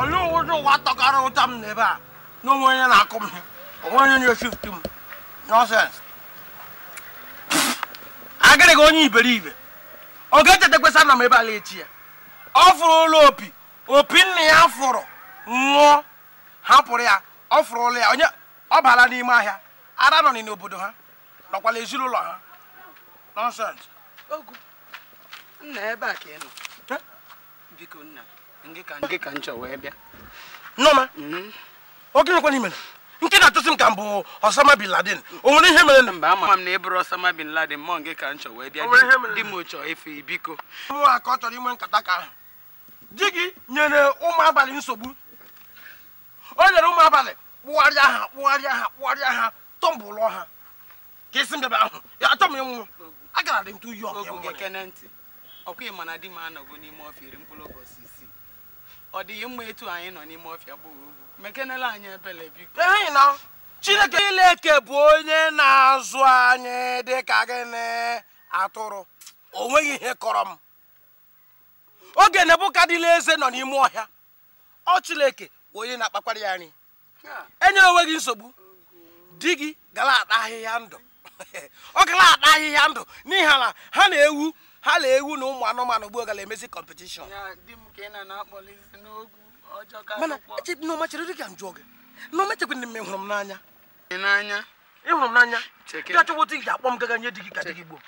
olu ụdị ụwa tọkara ụta m n'ebe a na onye na-akụ m onwe onye na-eshift m nọsens agịrị gị onye iberibe oge echeta kwesa na m ebe ala echi ya ọ fụrụ ụlọ opi opi nna ya fụrụ nwụọ hapụrụ ya ọ fụrụ ụlọ ya onye ọ bara n'ime ahịa ara nọ n'obodo ha nọkwala ezinụlọ ha nọnsens nna ebe a ka ị nọ biko nna ogenekwana ka nke hmm? na-atụsị m ka m bụ Osama bin Laden o nwere ihe mere na mba ama m na ịbụrụ Osama bin Laden mọ nke ka m chọ wee bịa di m chọọ efe biko nwa ka ọ chọrọ inwe nkata ka ahụ di gị nyere ụmụ abalị nsogbu o nyere ụmụ abalị kpụgharịa ha kpụgharịa ha kpụgharịa ha ha ka isi mbebe ahụ ya m ọkụ ya ịma na di m anọgo n'ime ọfịa iri mkpụrụ ọ dịghị mma etu anyị nọ n'ime ọfịa gboo ugwu mekenela anyị ebele biko chineke ileke bụ onye na-azụ anyị dị ka gịnị atụrụ o nweghị ihe kọrọ m oge nebukadila eze nọ n'ime ọhịa ọ chileke bụ onye na-akpakwara ya anyị enye onwe gị nsogbu di gị gara ata ahịhịa ndụ ọ gara ata ahịhịa ndụ n'ihi na ha na-ewu ha na ewu na ụmụ anụmanụ gboo gara emezi kọmpetishọn mana echebe na dị m gị na ọma echekwa mme hụrụ m n'anya ịhụrụ m n'anya dị achọwụta ị ga-akpọ m gaga nye di gị ka di gị gboo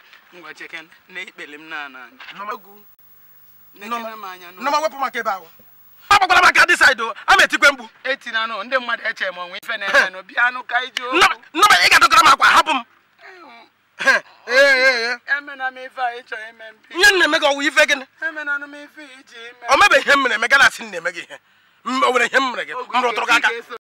nọma wepụ maka ebe ahụ dị saidị a ma etikwe mgbu nọma ị ga m akwa hapụ m Nye nna eme gị ọwụ ife gịnị o mebe ihe m mere eme gị na-asị nna eme gị ihe o ihe m mere gị m rụtụrụ gị aka